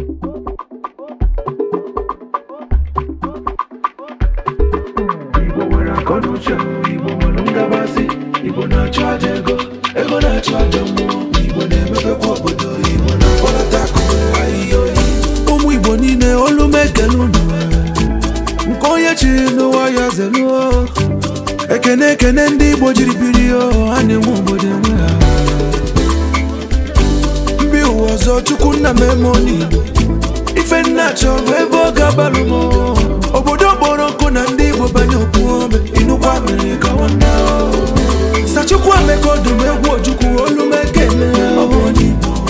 Igbo nwere Igbo nwere ngagbasị, Igbo na-achọ aja ego na-achọ aja Igbo na obodo Igbo na ahịhịa ụmụ Igbo niile olu m nke onye chiri n'ụwa ya zeluo ekene ekene ndị Igbo jiri biri oh, ha na-enwe obodo enwe ha ụzọ chukwu nna m emoni ife nna chọrọ ebe ọ ga-abalụ m obodo kpọrọ nkụ na ndị igbo banye okwuome inukwa mere ka nwanne sachukwu emeka ọdụm egwu ojukwu olumeke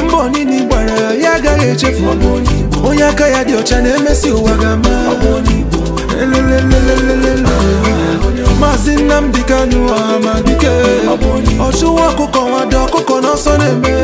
mba onini gbara ya ya agaghị echefu onye aka ya dị ọcha na-emesi ụwa ga-ama maazị Nnamdi Kanu amadike ọchụwa ọkụkọ nwado ọkụkọ n'ọsọ na-eme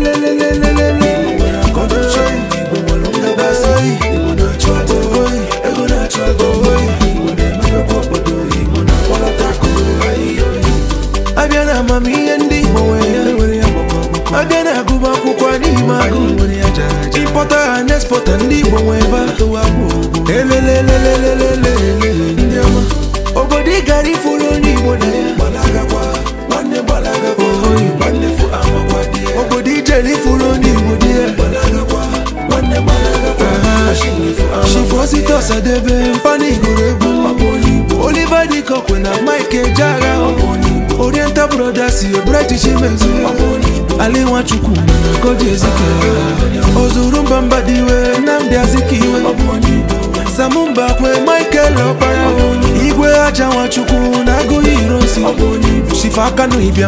amamihe ndị Igbo nwere ya ọ na-agụba akwụkwọ n'ime agụ ịpọta ha na-espọta ndị Igbo nwe elelelelelele ndị ọma obodo ị gara ifuru onye Igbo na obodo ijere ifuru onye Igbo dị ya shifosite ọsadebe egwu Oliver na Mike oriental brothers eburetichi british mezi ali nwachukwu goji ezike ozuru mba mba dị iwe azikiwe samumba kwe michael ọkpara igwe aja nwachukwu na agụghị irosi shifa aka n'ibia